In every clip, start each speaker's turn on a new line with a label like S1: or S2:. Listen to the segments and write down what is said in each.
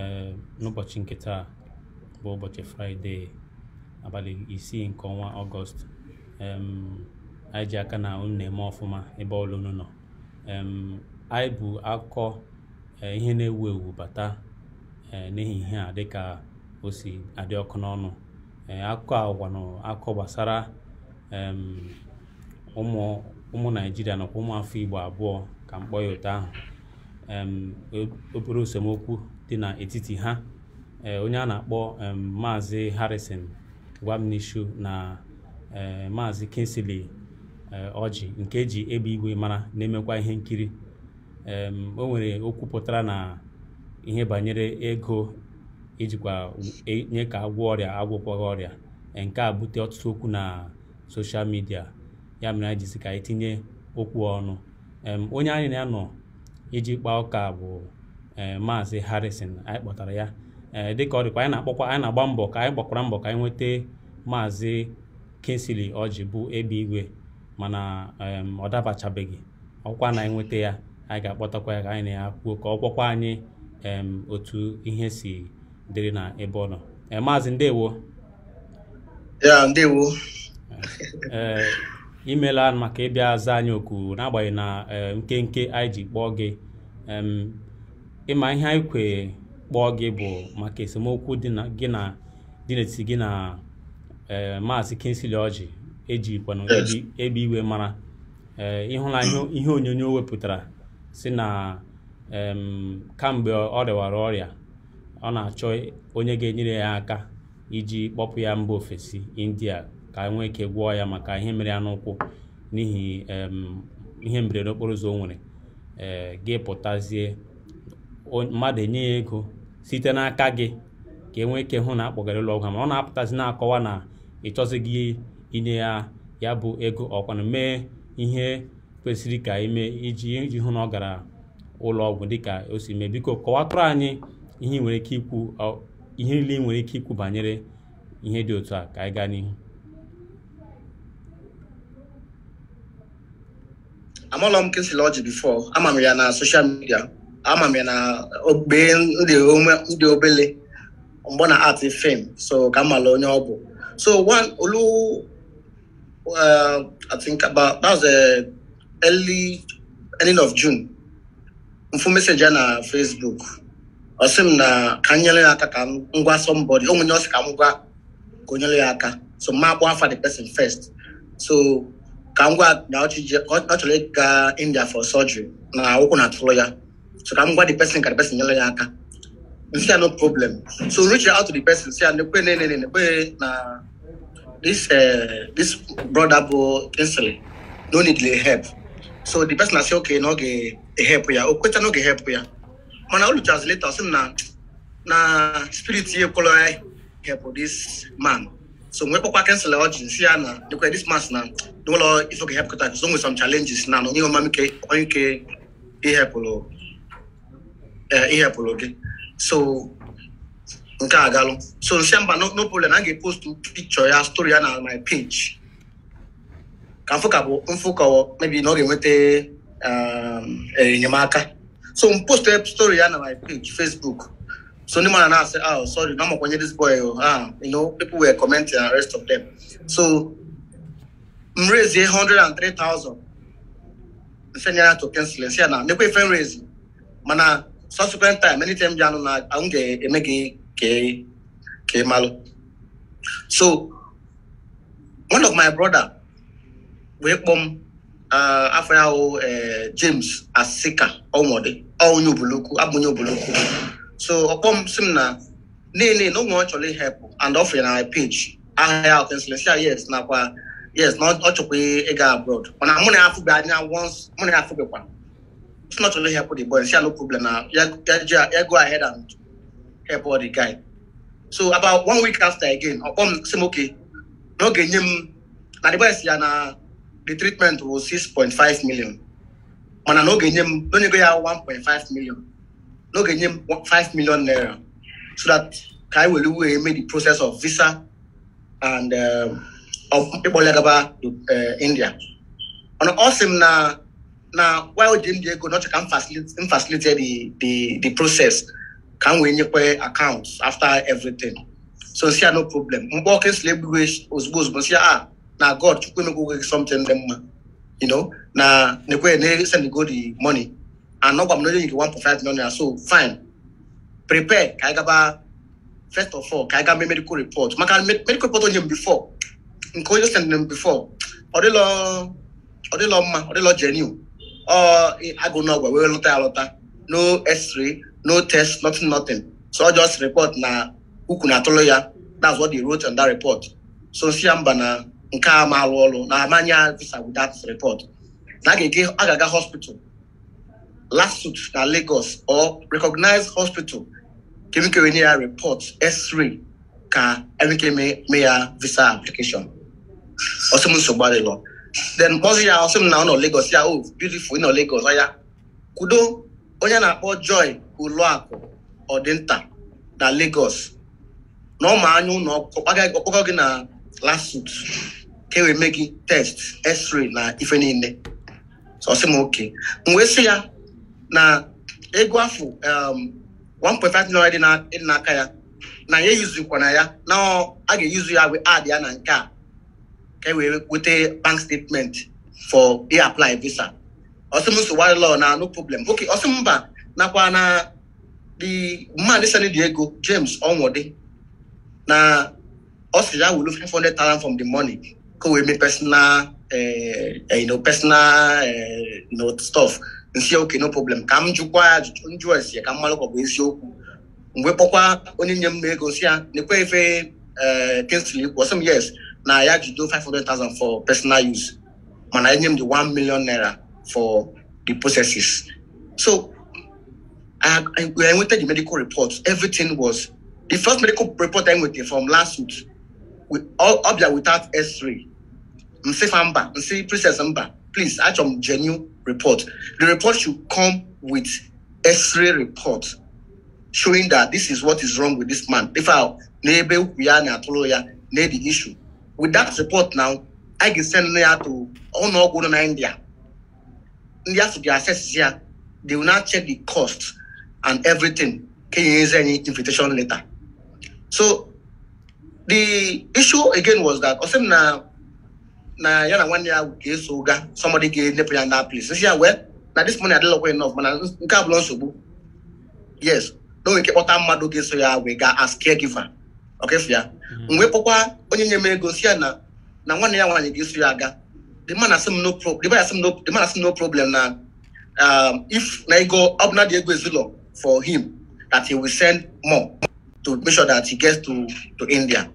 S1: Eh, n'ụbọchị nke taa bụ ụbọchị fraịde abalị isii nke ọnwa ọgọst anyị ji aka na unu na-eme ọfụma ebe ọlụ unu nọ anyị bụ akọ eh, ihe na-ewu ewu bata n'ehihie a dịka o si adị ọkụ n'ọnụ eh, akụkọ agwa na akụkọ gbasara ụmụ naijiria nakwa ụmụ afọ igbo abụọ ka mkpọ ya ụtọ ahụ obere esemokwu dị n'etiti ha eh, onye a na-akpọ maazị Harrison Gwamnishu na eh, maazị Kingsley Ọjị eh, nke eji egbe igwe mara na-emekwa ihe nkiri o nwere okwu pụtara na ihe banyere ego ijikwa e, nye ka agwọ ọrịa agwụkwọ ọrịa nke a bute ọtụtụ okwu na soshal midia ya mere anyị jisi ka anyị tinye okwu ọnụ onye anyị na ya iji kpaa ụka bụ Eh, maazị harrison anyị kpọtara ya eh, dịka ọ dịkwa anyị na-akpọkwa anyị na-agba mbọ ka anyị gbakwara mbọ ka anyị nweta maazị kinsley ọjị bụ ebe igwe mana ọ dabachabeghị ọkwa na anyị nweta ya anyị ga-akpọtakwa ya ka anyị na ya kwuo ka ọ gwọkwa anyị otu ihe si dịrị na ebe ọ nọ eh, maazị ndewo ya ndewo ee imela maka ịbịa zaa anyị oku n'agbanyeghị na nkenke anyị ji kpọọ gị ịma ihe anyị kwe kpọọ gị bụ maka esemokwu dị na gị na dị n'etiti gị na eh, maazị Kingsley Orji ejikwana ebe iwe mara eh, ịhụla ihe onyonyo wepụtara si na kamgbe ọ rịwara ọrịa ọ na-achọ onye ga-enyere ya aka iji kpọpụ ya mba ofesi India ka e nwee ike gwọọ ya maka ihe mere ya n'ụkwụ n'ihi ihe mberede okporo ụzọ o nwere eh, gị pụtazie mmadụ enye ya ego site n'aka gị ka e nwee ike hụ na akpọgara ụlọ ọgwụ ọ na-apụtazi na-akọwa na ị chọzighị inye ya ya bụ ego ọkwana mee ihe kwesịrị ka ime iji iji hụ na ọ gara ụlọ ọgwụ dịka o si mee biko kọwatụrụ anyị ihe nwere ike ikwu ihe niile nwere ike ikwu banyere ihe dị otu a ka anyị gaa n'ihu
S2: amụọla m kesịla ọjị ya na soshal midia ama m na ogbe ndị obele mgbe na art fim so ka m mara onye ọ bụ so one olu uh, I think about that was uh, early ending of June. Mfu messenger na Facebook. Ọ sị m na ka m nyere ya aka ka m ngwa somebody onwe onye ọsị ka m gwa ka o nyere ya aka so m akpọ afa the person first so ka m gwa na ọ chọrọ ịga India for surgery na ụkwụ na-atụrụ ya So come what the person can the person yellow yaka. You see, no problem. So reach out to the person. See, and the way, nay, nay, nay, na this uh, this brother bo instantly no need the help. So the person I say okay, no get e help ya. Oh, question no get help ya. Man, I will translate. I say na na spirit here color help this man. So when Papa cancel the audience, see, na the this man na no law if okay help because there's always some challenges na no you mama ke on ke e help lo. Eh, ihe ịhepụrụ gị so nke a galụ so nsemba no problem a ga-epostu pikchọ ya story ya na my page ka mfụ ka bụ mfụ kọwọ mebi na ọ ga-enweta um, enyemaka so m post story ya na my page facebook so ndị mara na-asị ah sorry na makwanye this boy ah you know people were commenting and rest of them so m raise hundred and 103,000 mfe nyere to pencil si ya na mekwa ife m raise mana subsequent time anytime ya no na ahun ke eme ke ke ke malo so one of my brother wey pom uh, afra o uh, james asika ọmọdé ọhún oboloku abunye oboloku so ọpọm sim na nene no wọn Actually, help and often I page I have si a yes now, yes na ọ chọkwa ịga abroad When mụ money I afụbe now once money I ya one. it's not only help the boy. See, no problem now. Yeah, yeah, yeah, go ahead and help all the guy. So about one week after again, upon say okay, no get him. Now the boy see na the treatment was six point five million. I no get him. No go ya one point five million. No get him five million naira. So that guy will do. make the process of visa and uh, of people like about uh, India. And awesome now. na while jimdi ego n'ọchọ ka m facilitate the the the process ka m wee nyekwe account after everything so nsi ya no problem mgbe ọkụ esila egbughe ozugbo ozugbo nsi ah na god chukwu emegwoghe something dị mma you know na nekwe na send go the money and ọgwa m na one nyere five million so fine prepare ka gaba first of all ka anyị gaba medical report maka medical report onye m before nke onye send m before ọ dịlọ ọ dịlọ mma ọ dịlọ genuine ọ agụ n'ọgwa wee ya lọta no x-ray no test nothing nothing so just report na ukwu na atụlụ ya that's what they wrote on that report so si ya mba na nke a ma alụ ọrụ na amanya visa that report na a ga-aga hospital last suit na Lagos or recognize hospital kemikere nye ya report x-ray ka emeke mee ya visa application ọsọ m nsogbu adịlọ then kpọzi ya ọsị m na ọ nọ ya o beautiful nọ Legos ọya kwudo onye na-akpọ Joy Oluakụ Ọdịnta na Legos, na ọ ma anya ụlọ ọkpọkọ gị na lasut ka e wee mee gị test x-ray na ife niile ọsị m oke m wee sị ya na ego afọ 1.5 um, million dị n'aka ya na ya eyizukwana ya na a ga-eyuzu ya wee ad ya na nke a ka e wee weta bank statement for e apply visa ọsị m nsogbu law na no problem oke ọsị mba nakwa na the man send the ego James Onwode na ọ sị ya wulu 500,000 from the money ka wee mee personal uh, you know, personal uh, you know, stuff nsị oke no problem ka m jụkwa ya njụ esi ka m mara ka ọ bụ eziokwu mgbe kpọkwa onye nye m ego si ya na-ekwe efe Kingsley ikwu ọsị m yes Now I had to do 500,000 for personal use. And I named the 1 million naira for the processes. So I, I, I went to the medical reports. Everything was the first medical report I went from last week. We all up there without S3. Mr. Famba, Mse Princess Mba, please, I some genuine report. The report should come with X-ray report showing that this is what is wrong with this man. If our neighbor we are the issue, with that report now I can send ya to ọnụọgwụ nọ na india ndi to be assessed here. they will now check the cost and everything you use any invitation letter so the issue again was that ọ sị na na ya na nwanne ya ga-eso ụga somebody ga-enyepụ ya na place nsi ya well, now this money adịlọkwa enough mana nke abụla nsogbu yes can't. I'm kpọta mmadụ so yeah We got as caregiver ọkesi ya mwepụkwa mm-hmm. onye nye m ego si ya na na nwanne ya nwaanyị ga-eso ya aga the man asị m no pro the man asị m no the man asị no problem na um, if na ego ọ bụ na dị ego ezinụlọ for him that he will send more to make sure that he gets to to India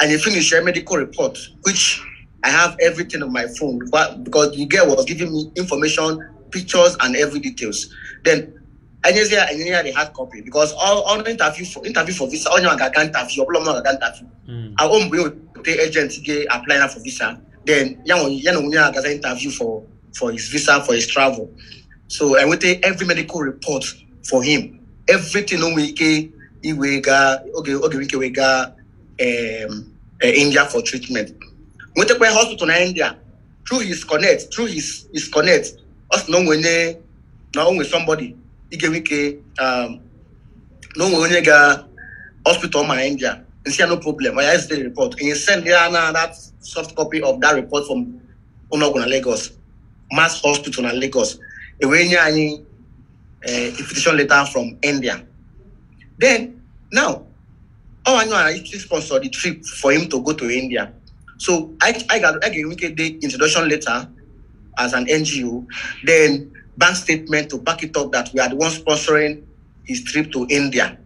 S2: and he finish a medical report which I have everything on my phone but because the girl was giving me information pictures and every details then ẹ̀yẹ sẹ́ ẹ̀yẹ yà dey hard copy because all all the interview for interview for visa all ọ̀nyẹ̀ àgàgà interview ọ̀pọ̀lọpọ̀ àgàgà interview àwọn òmùbí yóò pé agent gé apply na for visa then yàwọn yẹn òun yẹn àgàgà interview for for his visa for his travel so ẹ̀wọ́n tẹ every medical report for him everything ó wẹ̀ ike ìwé ga oge oge wíkẹ̀ wẹ̀ ga um, eh, India for treatment wọ́n tẹ pé hospital na India through his connect through his his connect ọ̀sìn náà wọ́n ní na only somebody. igewe ike um, na o nwere onye ga hospital mana india and say no problem i just the report and you send yeah, nah, that soft copy of that report from unoguna lagos mass hospital in lagos away nye anyị eh, invitation letter from india then now all i know i actually sponsor the trip for him to go to india so i i got i get the introduction letter as an ngo then bank statement to back it up that we are the ones sponsoring his trip to India.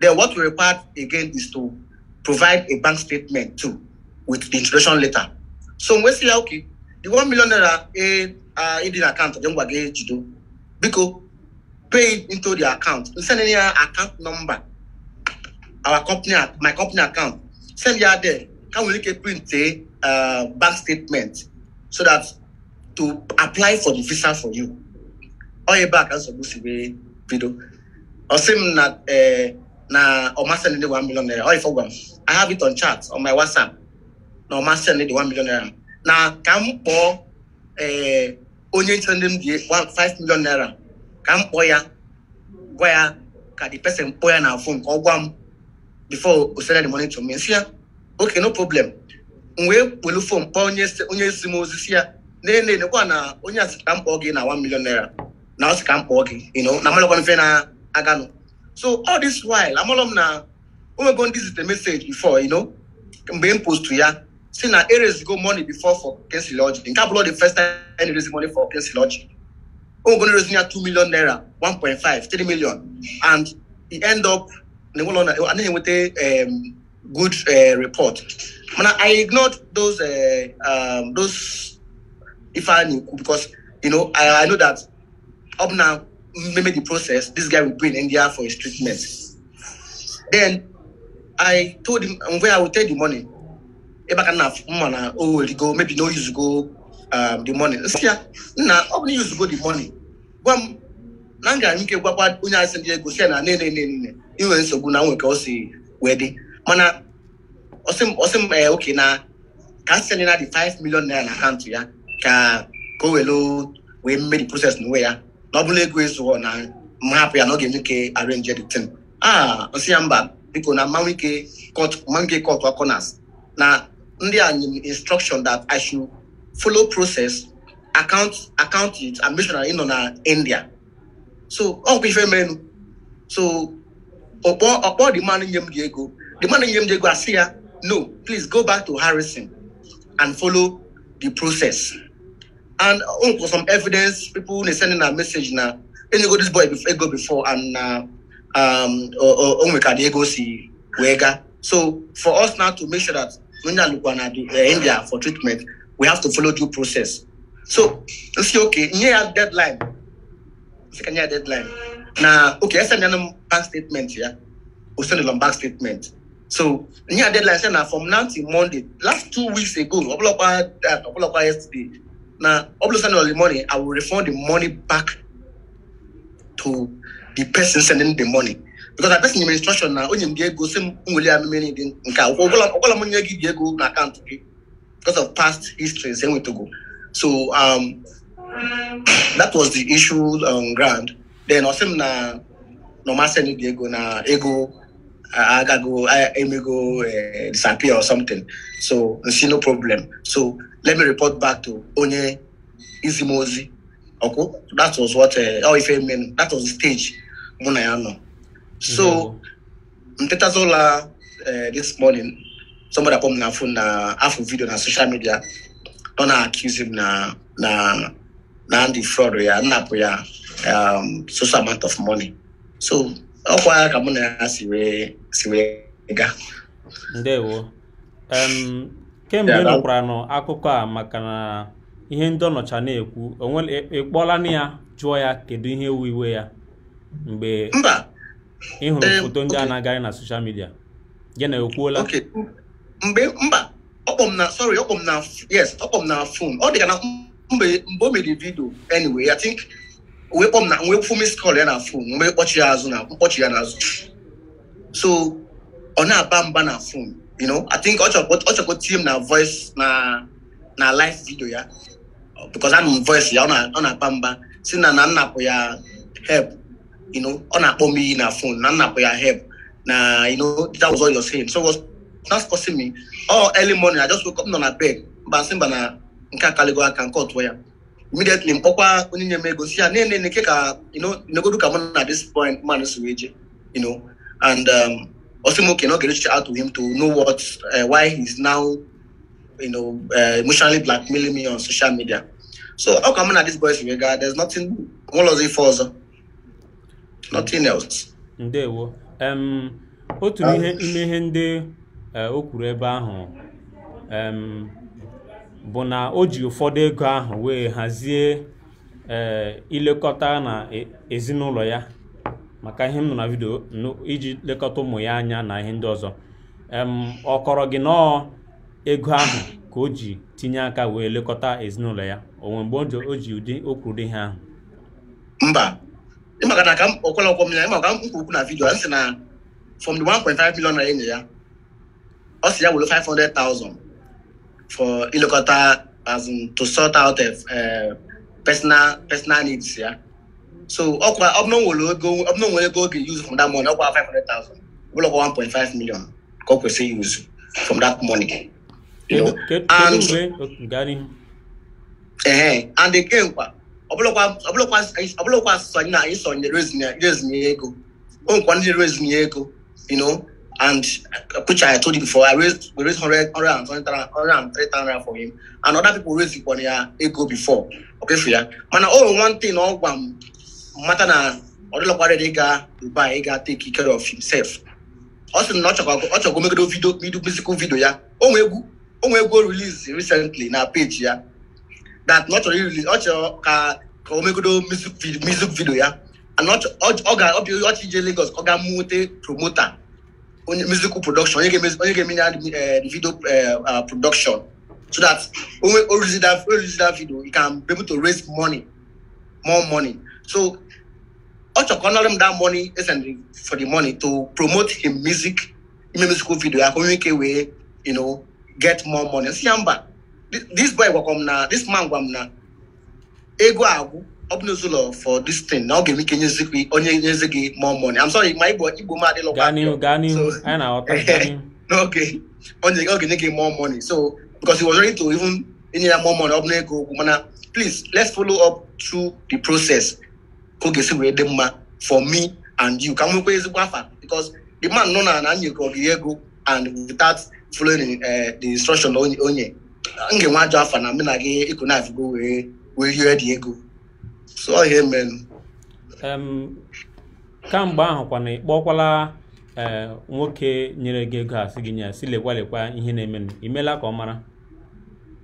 S2: Then what we require again is to provide a bank statement too with the introduction letter. So we say, okay, the one million naira uh, in the account, then we get to because pay into the account. We send any account number, our company, my company account. Send you there. Can we make print a uh, eh, ah, bank statement so that to apply for the visa for you? onye ebe a ka nsogbu si wee bido ọ m na ee eh, na ọmasị ndị one naira ọ ifọ m I have it on chat on my WhatsApp na ọmasị ndị one naira na ka m eh, onye nche ndị m 5 naira ka m ya gwa ya ka the pesin kpọọ ya na phone ka ọ gwa m before o send the money to me si ya okay no m wee onye m ozi ya na na onye mkpọ gị na 1 naira Now ọ can't m you know I'm mfe na-aganụ so all this while I'm I'm going. This is the message before you know being posted postu ya si na erezigo money before for kensil ọjị nke abụrụ the first time erezi money for I'm going to raise near 2 million naira 1.5 3 million and he end up n'ụlọ na anaghị enweta um, good uh, report i ignored those uh, um, those because you know I, i know that up now, maybe the process, this guy will bring India for his treatment. Then I told him where I will take the money. Oh, go, maybe no use go um, the money. Yeah, nah, only use go the money. Gwam, na m gara ike gwakwa onye asị ndị ego si na nene nene inwe nsogbu na nwe ka ọ si mana ọsị m ee eh, oke na ka asị the 5 million naira na to ya ka ka o were wee mmeri proses na uwe ya nọbụla ego ezughọ na m hapụ ya na ọ ga arenje the thing aa nsị ya mba biko na mmanwụ ike kọt corners na ndị anyị instruction that i should follow process account account it and make sure na india so ọ oh, bụ ife merenụ so ọkpọ ọkpọ dị mmanụ nye m dị ego dị mmanụ nye m dị ego asị ya no please go back to harrison and follow the process And um, for some evidence, people they sending a message now. And you go this boy before, go before and uh, um, or we can go see wega. So for us now to make sure that when you look at India for treatment, we have to follow due process. So it's okay. Near deadline, second year deadline. Now, okay, I send them bank statement yeah. We send them bank statement. So near deadline, send from now till Monday. Last two weeks ago, I uh, yesterday. Now, obviously, all the money, I will refund the money back to the person sending the money. Because I person in instruction now, only you get same only I'm meaning in car. All I'm going to give go na account because of past history, same way to go. So um, that was the issue on ground. Then also na no matter the ego na ego I, I go I, I go uh, disappear or something. So see no problem. So let me report back to onye izi m ozi ọkwụ that was what ọ eh, oh, ife men that was the stage mụ na ya nọ so m tetaza eh, this morning somebody akpọ m na afụ na afọ vidio na social media ọ na accuse m na na na ndị fraud ya nnapụ ya um, social amount of money so ọ ọkwa ka mụ na ya si wee si wee ga.
S1: ndewo kemgbe ị nọ akụkọ a maka na ihe ndị ọnọcha na-ekwu ị kpọọla na ya jụọ ya kedu ihe ewu iwe ya mgbe ị hụrụ eh, foto ndị a na-agarị na soshal midia gị na ekwuola mba
S2: sorry yes ọ dị na mgbe o wee na miss ya fon mgbe azụ na mkpọchi ya n'azụ so ọ na-aba mba na fon you know i think ọchọkwa tie team na voice na na live video ya because I'm voice ya ọ na-akpa mba si na na nnapụ ya help you know ọ na-akpọ m iyi na phone na nnapụ ya help na you know that was all you're saying so was not causing me all oh, early morning i just woke up nọ na bed mba sị mba na nke akaligo aka nke ọtụọ ya immediately mkpọkwa onye nye m ego si ya na-ene nke ka you know negodu ka m na this point man si wee je you know and um, Osumoke cannot get reached out to him to know what uh, why he's now you know uh, emotionally blackmailing me on social media. So how come at this boy's regard? There's nothing one of the further. Nothing else.
S1: Ndewo. Um otu ah. ihe ime ihe ndị uh, o kwuru ebe ahụ um bụ na o ji ụfọdụ ego ahụ wee hazie uh, ilekọta na e, ezinụlọ ya maka ihe m nọ na vidio iji lekọta ụmụ ya anya na ihe ndị ọzọ ọ kọrọ gị nọọ ego ahụ ka o ji tinye aka wee lekọta ezinụlọ ya onwe mgbe o ji ụdị o kwuru ihe ahụ
S2: mba ịmaka na ka m ọkwọlọkwọ m ya ịmaka m kwukwu na vidio sị na from the five million na enye ya ọ sị ya were 500,000 for ilekọta as in to sort out eh, personal personal needs ya so ọkwa ọbụna nwere ego ọbụna nwere ego oge use from that money ọkwa 500,000 ọbụla 1.5 million ka ọ kwesịrị use from that money and ehe and nkwa ọbụla na rezinye ego o nkwa ndị rezinye ego you know and which I told you before, I raised we raised hundred hundred and twenty three thousand for him, and other people raised ego before. Okay, for ya. mana oh one thing, mata na ọ dịlọkwara ga Dubai ga take care of himself ọ sị na ọ chọkwa chọkwa ọ chọgo omegodo vidio musical video ya onwe egwu onwe egwu release recently na page ya that na ọ chọrọ release ọ chọrọ ka ka omegodo music video ya ana ọ ga ọ ọchị ije Lagos ọ ga-amụte promota onye musical production onye ga-eme ya eh, video eh, ah, production so that onwe original video you can be able to raise money more money so Ocho honored him that money isn't for the money to promote his music, his musical video. I communicate way, you know, get more money. See, I'm back. this boy will come now, this man will come now. Ego agu, obnuzula for this thing. Now give me Kenya Ziki, Onye Ziki more money. I'm sorry, my boy, Ibo Madi
S1: Loka. Gani, Gani, and our
S2: Okay, Onye Gani give more money. So, because he was ready to even, in more money, Obnego, Please, let's follow up through the process. ka ọ ga-esi wee dị mma for me and you ka m nwekwa ezigbo afa because the man nọ na na nyekọ gị ego and without following eh, the instruction onye m ga-enwe ajọ afa na mụ na gị ịkụ na afigo wee wee rie dị ego
S1: so ọ eme mere kamgbe ahụ kwana na ịkpọkwala eh, nwoke nyere gị ego asị gị nye si lekwalekwa ihe na-emenụ imela ka ọ mara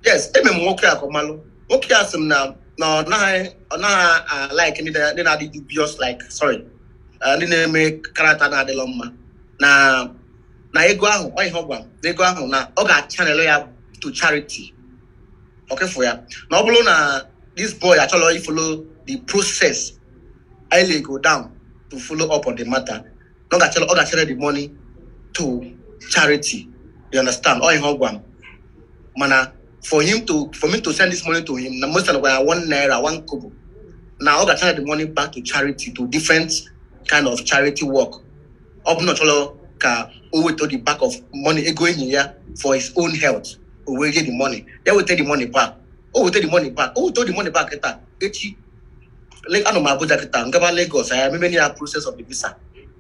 S2: yes eme m nwoke a ka ọ malụ nwoke a sị m na Uh, na ọ naghị ọ naghị alaik ndị na-adị dubious like sorry uh, ndị na-eme karata na-adịlọ mma na na ego ahụ ọ ihe ọ na ego ahụ na ọ ga n'elu ya to charity ọkefụ ya na ọ bụrụ na this boy achọrọ folo the process ele go down to follow up on the matter na ọ ga-achere the money to charity you understand ọ ihe for him to for me to send this money to him, most of the time one naira, one kobo. Now I got the money back to charity, to different kind of charity work. Up not all ka will to the back of money going here for his own health. We get the money. They will take the money back. Oh, we take the money back. Oh, take the money back. Kita, echi. Like I know my brother am going Lagos. I am many process of the visa.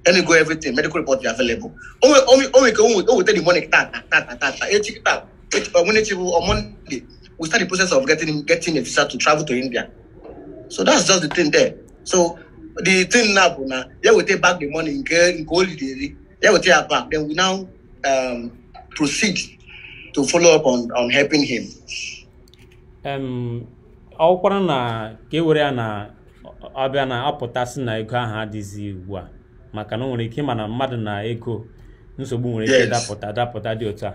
S2: Any go everything medical report available. Oh, oh, oh, oh, oh, take the money. Ta ta ta ta Echi on Monday, we start the process of getting getting a visa to travel to India. So that's just the thing there. So the thing now, now yeah, we take back the money in gold daily. Yeah, we take it back. Then we now um, proceed to follow up on, on helping him.
S1: Um, ọ kwara na ka na ọbịa na na ego ahụ adịghịzi ugbu a maka na o nwere ike ịma na mmadụ na ego nsogbu nwere ike dapụta dapụta di otu a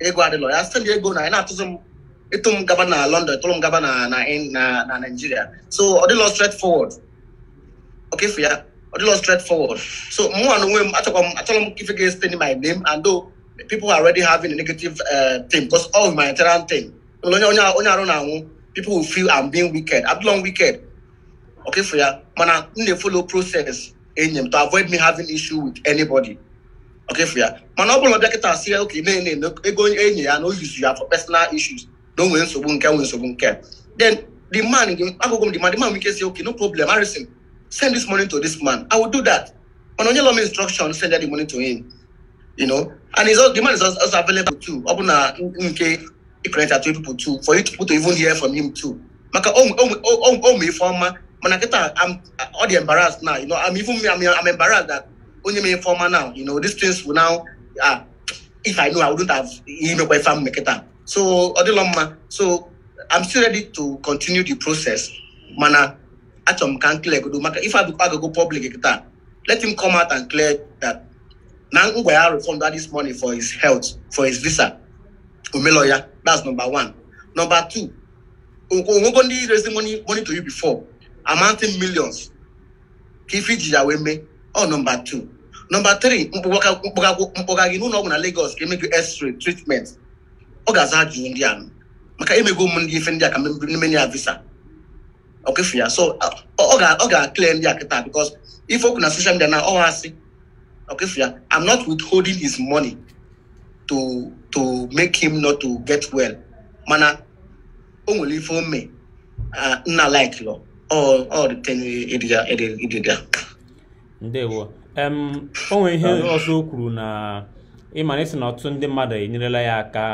S2: ego adịlọ ya site na ego na na na-atụzụ m gaba na London ịtụrụ gaba na na na Nigeria so ọ dịlọ straight forward okefu ya ọ dịlọ straight so mụnwa na onwe m achọkwa m achọrọ m my name and though people are already having a negative uh, thing because all humanitarian thing onye onye onye arụ na-anwụ people will feel I'm being wicked I'm long wicked okay for ya mana m na-follow process enyi m to avoid me having issue with anybody Okay, ọkefia mana ọ bụla bịakịta asị ya oke na-ene ego enyi ya na o yuzu ya for personal issues na o nwere nsogbu nke nwere nsogbu nke then the man agụgụ m the man the man nwike si okay no problem harrison send this money to this man i will do that mana onye lọm instruction send that the money to him you know and his, the man is also available too ọ bụ na nke ịkọnekta to people too for you people to even hear from him too maka o nwe ife ọma mana kịta ọ dị embarrassed now you know i'm even i'm, I'm embarrassed that only me informer now. You know, these things will now uh, if I know I wouldn't have email by farm make it up. So so I'm still ready to continue the process. Mana atom can clear go if I go public let him come out and clear that Nangwaya refund that this money for his health, for his visa. Umeloya, that's number one. Number two, Ugondi raising money money to you before, amounting millions. Kifiji away me. oh number two. nọmba tiri mkpọga gị n'ụlọ ọgwụ na Lagos ka emego x-ray treatment ọ ga-aza ajụjụ ndị a maka emego ụmụ ndị ife ndị a ka mmenye ya visa ọkefu ya so ọ ga-akle ndị a kịta because ife okwu na social media na ọ asị ọkefu ya I'm not withholding his money to to make him not to get well mana o nwere ife ome nna like lọ ọ dị tenye
S1: ndewo o nwere ihe ọzọ o kwuru na ịmana isi na ọtụtụ ndị mmadụ enyerela ya aka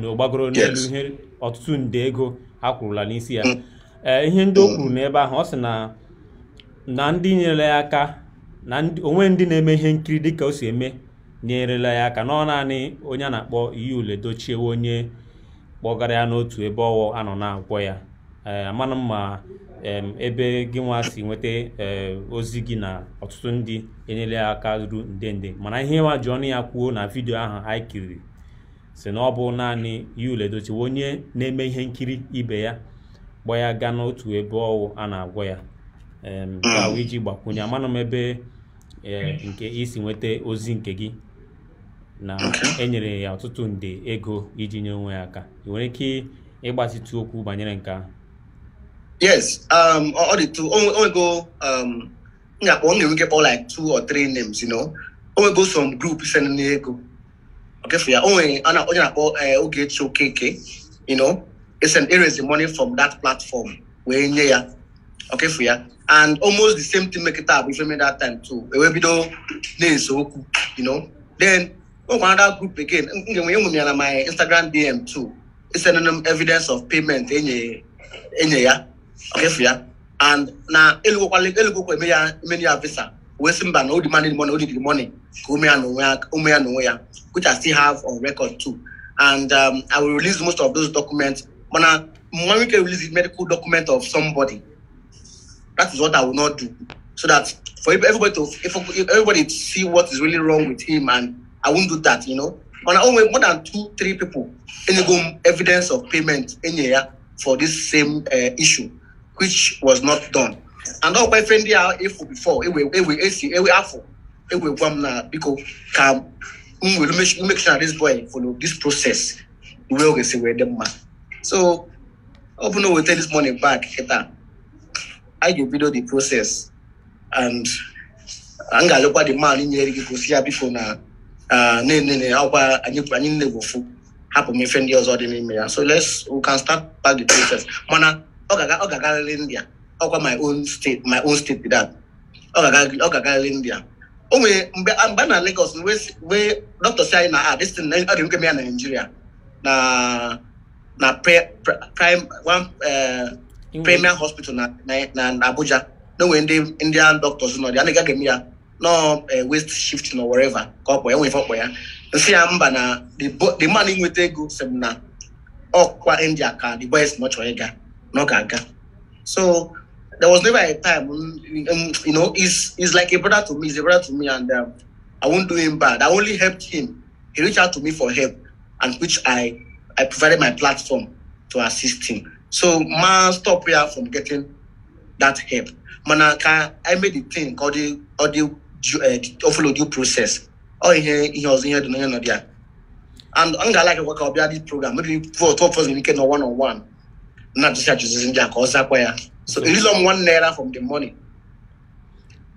S1: n'ọgbagoro n'elu ihe ọtụtụ nde ego ha kwurula n'isi ya mm. e, ihe ndị o mm. kwuru n'ebe ahụ ọ sị na na ndị nyerela ya aka na onwe ndị na-eme ihe nkiri dị ka o si eme nyerela ya aka na naanị onye a na-akpọ ule Dochiewe onye kpọgara ya n'otu ebe ọwụ anọ na-agwọ ya ee amana mma ebe gị nwa si nweta eh, ozi gị na ọtụtụ ndị enyere ya aka ruru nde nde mana ihe nwa ji ọnụ ya kwuo na vidiyo ahụ anyị kiriri si na ọ bụ naanị Yul Edochie onye na-eme ihe nkiri ibe ya gbaa ya gaa n'otu ebe ọwụ a na-agwọ ya gawa iji gbakwunye amanụ m ebe eh, nke isi nweta ozi nke gị na enyere ya ọtụtụ nde ego iji nye onwe ya aka ị nwere ike ịgbatịtụ okwu banyere nke ahụ
S2: Yes, um, all the two only, only go um, yeah, only we get all like two or three names, you know. Only go some group send me go. Okay, for eh, yeah, only and only about uh, okay, KK, you know. It's an raise the money from that platform. We in here, okay, for you. And almost the same thing make it up if you made that time too. It will be though, so you know. Then oh, another group again. Mm, mm, mm, my Instagram DM too. It's an um, evidence of payment. Any, eh, any, yeah. Eh, kefia and now elugokwa elugokwa eme ya eme ya visa wee sị mba na o money o money ka ume ya n'onwe ya ume which I still have on record too and um, I will release most of those documents mana mmanwụ ike release the medical document of somebody that is what I will not do so that for everybody to if everybody to see what is really wrong with him and I won't do that you know mana own more than two three people any evidence of payment enye ya for this same uh, issue which was not done. And now my friend there efu before, ewe ewe esi ewe afọ, ewe gwam na biko ka m were make sure this boy follow this process We way we say we dem ma. So ọ bụ na o weta this money back I ga video the process and I'm m ga-alụkwa the man nyere gị gosi ya biko na na-enene ọkwa anyị nne bụ ofu hapụ m ife ndị ọzọ dị n'ime ya so let's we can start back the process mana ọ ga-agarịrị India ọkwa my own state my own state that ọ ga-agarịrị India o nwere mgbe a na Lagos wee dọkịta si anyị na ah this thing ọ dị nke ya na Nigeria na na prime one eh, premier hospital na Abuja na onwere ndị Indian doctors nọ dị anaghị aga eme ya nọ eh, west shift nọ wherever ka ọ kpọ ya nwere ife ọkpọ ya nsị ya mba na the man inweta ego sem na ọkwa India ka the boys nọ chọrọ ịga no kanka. So there was never a time, um, um, you know, he's, he's like a brother to me, he's a brother to me, and um, I won't do him bad. I only helped him. He reached out to me for help, and which I, I provided my platform to assist him. So, man, stop here from getting that help. Man, I, can, I made the thing called the, or the uh, offload due process. Oh, he, he was in here doing another. And I like like work out this program. Maybe for twelve of us in weekend or one on one. Not just achụzizi ndị in ka ọ So it is on one naira from the money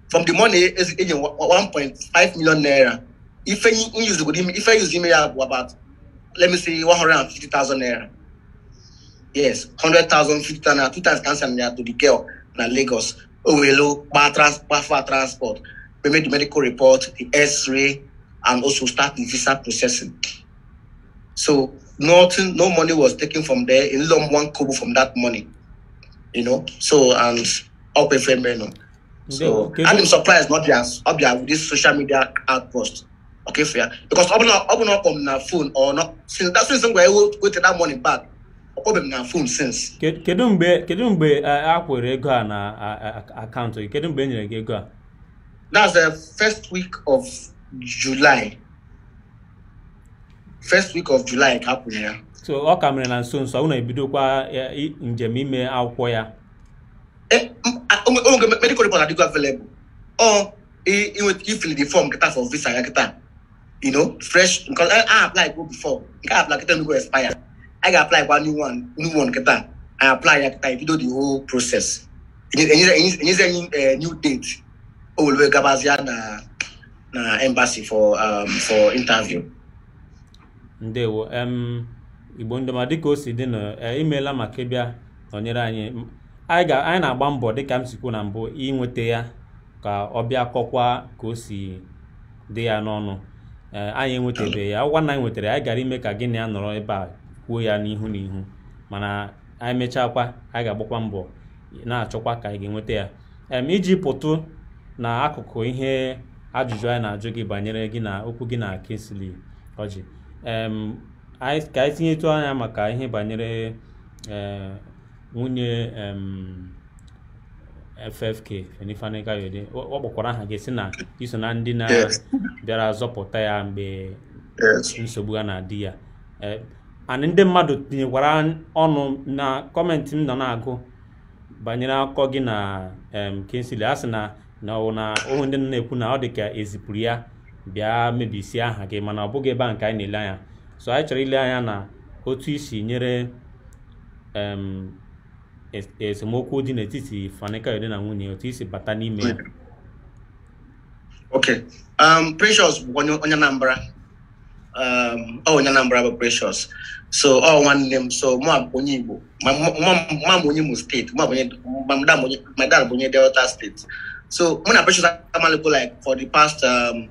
S2: from the money is 1.5 million naira If I use the yuzi I ya bụ about let me say 150,000 naira yes 100,000 naira, two times cancer ya to the girl na Lagos o were kpa kpafa transport We made the medical report the x-ray and also start the visa processing so nothing, no money was taken from there. In long one kobo from that money, you know. So and up a frame, you know. So okay. and I'm surprised not just up there with this social media outburst. Okay, fair because open up, open up on my phone or not since that's reason why I will take that money back. Open my phone since.
S1: Kedu mgbe kedu mgbe a kwere ego a na akaụntụ gị kedu mgbe e nyere gị ego a?
S2: That's the first week of July. first week of July ka a ya
S1: so ọ ka mere na nso nso unu ebidokwa njem ime akwụkwọ ya
S2: eh, onwere medical report adịgo available ọ ifili the form kịta for visa ya kịta you know fresh nke a apply go before nke a apply kịta nugo expire I ga apply kwa new one new one kịta I apply ya kịta ibido e the whole process enyezi anyị eh, new date o were gabazie na na embassy for um, for interview
S1: ndewo igbo ndọma dịka o si dị na e, imeela maka ịbịa nọnyere anyị anyị na-agba mbọ dịka m sikwu na mbụ inweta ya ka ọ bịa kọkwa ka o si dị ya n'ọnụ e, anyị enwetebe ya ọgwa na anyị nwetara anyị gara ime ka gị na ya nọrọ ebe a kwuo ya n'ihu n'ihu mana anyị mechakwa anyị ga-agbakwa mbọ na-achọkwa ka anyị ga-enweta ya iji pụtụ na akụkụ ihe ajụjụ anyị na-ajụ gị banyere gị na okwu gị na Kingsley Orji ka anyị tinyetụ anya maka ihe banyere e, nwunye FFK Fani Kayode ọ kpọkwara aha gị si na iso na ndị na-bịara zọpụta ya mgbe nsogbu a na-adị ya e, anị ndị mmadụ tinyekwara ọnụ na kọmentị m nọ na-agụ banyere akụkọ gị na kensili a sị na na ọwụ na ohu ndị nọ na-ekwu na ọ dị ka ezipụrụ ya bịa mebisie aha gị mana ọ bụghị ebe a nke anyị na-ele anya so anyị chọrọ ile anya na otu isi nyere esemokwu dị n'etiti Fanikayode na nwunye otu isi bata n'ime ya
S2: okay um Precious bụ um, ọ onye Anambra bụ Precious so ọ nwanne m so mụ abụ onye Igbo ma m onye Imo steeti ma my dad bụ onye Delta steeti so mụ na Precious amalụgo like for the past um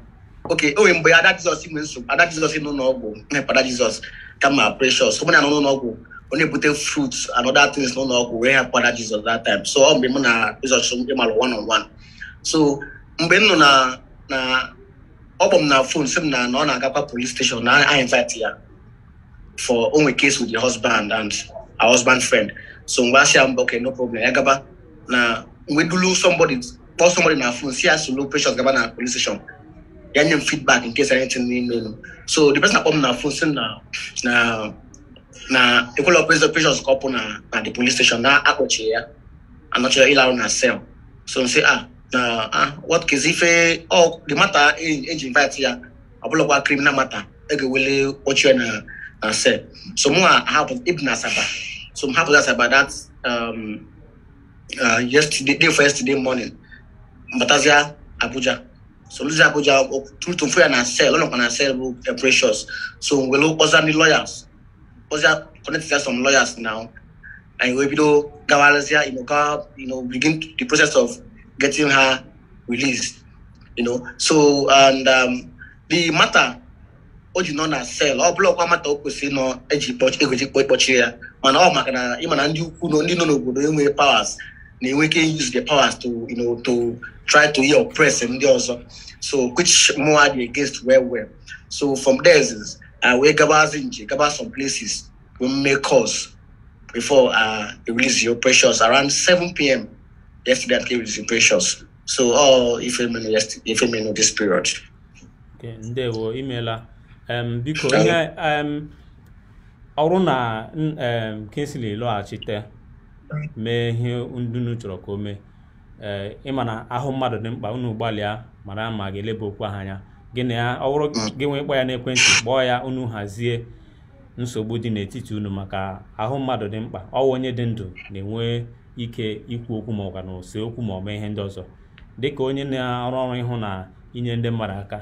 S2: oke o nwere mgbe ada jizọs nwere nsogbu ada jizọs nọ n'ụlọọgwụ mmepada jizọs kama precious ọ bụla nọ n'ụlọọgwụ ọ na-ebute fruits and other things n'ụlọọgwụ wee hapụ ada jizọs that time so ọ mgbe mụ na jizọs ịmalụ one on one so mgbe m na na ọ kpọ m na phone sị m na na ọ na-agakwa police station na I invite ya for onwe case with the husband and our husband friend so mgbe a asị ya mba ok no problem ya gaba na mgbe dulu somebody call somebody na phone si ya solo precious gaba na police station yan yin feedback in case anything we know. So the person come na phone say na na na equal operations operations couple na na the police station na akpoche ya. Anoche ilaro na cell. So say ah na ah what case if eh, oh the matter engine eh, eh, invite ya abulokwa criminal matter ege wele oche na na cell. So mo happen ibn asaba. So happen asaba that um uh yesterday day for yesterday morning. Batazia Abuja so olùdíje àgbèjà through to free and sell ọlọ́kan and sell uh, precious so wẹ̀lú ọ̀sán ní lawyers ọ̀sán connect to some lawyers now and wẹ̀ bí ló gawalẹ́sẹ̀ you know gawa you know begin the process of getting her released you know so and um, the matter o ji nọ na sel ọ bụla ọkwa mata o kwesịrị nọ eji egweji kpọchiri ya mana ọ maka na ịma na ndị ukwu ndị nọ n'obodo enweghị powers na enweke use the powers to you know to try to yeah, oppress ndị ọzọ so which more are they against well well so from there is uh, wee gabazi nje gaba some places we make calls before uh, they release your precious around 7 p.m. yesterday they released your precious so all uh, oh, ifemenu yesterday ifemenu this period.
S1: Okay, ndewo imela um, biko ihe um, ọrụ na um, Kingsley lọghachite mee ihe ndị unu chọrọ ka o mee ee ịma na ahụ mmadụ dị mkpa unu gbalịa mara ma ga-eleba okwu ahụ anya gịnị ya ọ bụrụ mm. gị nwee ịkpọ ya n'ekwentị kpọọ ya unu hazie nsogbu dị n'etiti unu maka ahụ mmadụ dị mkpa ọwa onye dị ndụ na-enwe ike ikwu okwu ma ọ na ose okwu ma ọ mee ihe ndị ọzọ dịka onye na-arụ ọrụ ịhụ na inye ndị mmadụ aka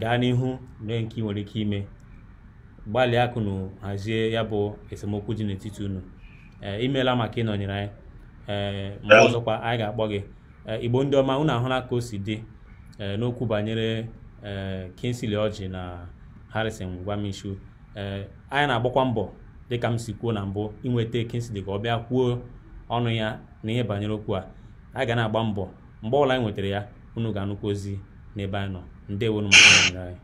S1: gaa n'ihu mee nke ị nwere ike ime gbalịa akụnụ hazie ya bụ esemokwu dị n'etiti unu ee imeela maka ịnọnyere anyị ee mgbe ọzọkwa anyị ga-akpọ gị igbo ndị ọma unu ahụla ka o si dị n'okwu banyere ee Kingsley na Harrison Nwamishu ee anyị na-agbakwa mbọ dịka m si kwuo na mbụ inweta kinsili ka ọ bịa kwuo ọnụ ya na ihe banyere okwu a anyị ga na-agba mbọ mgbe ọbụla anyị nwetara ya unu ga-anụkwa ozi n'ebe anyị nọ ndewonu maka ịnọnyere anyị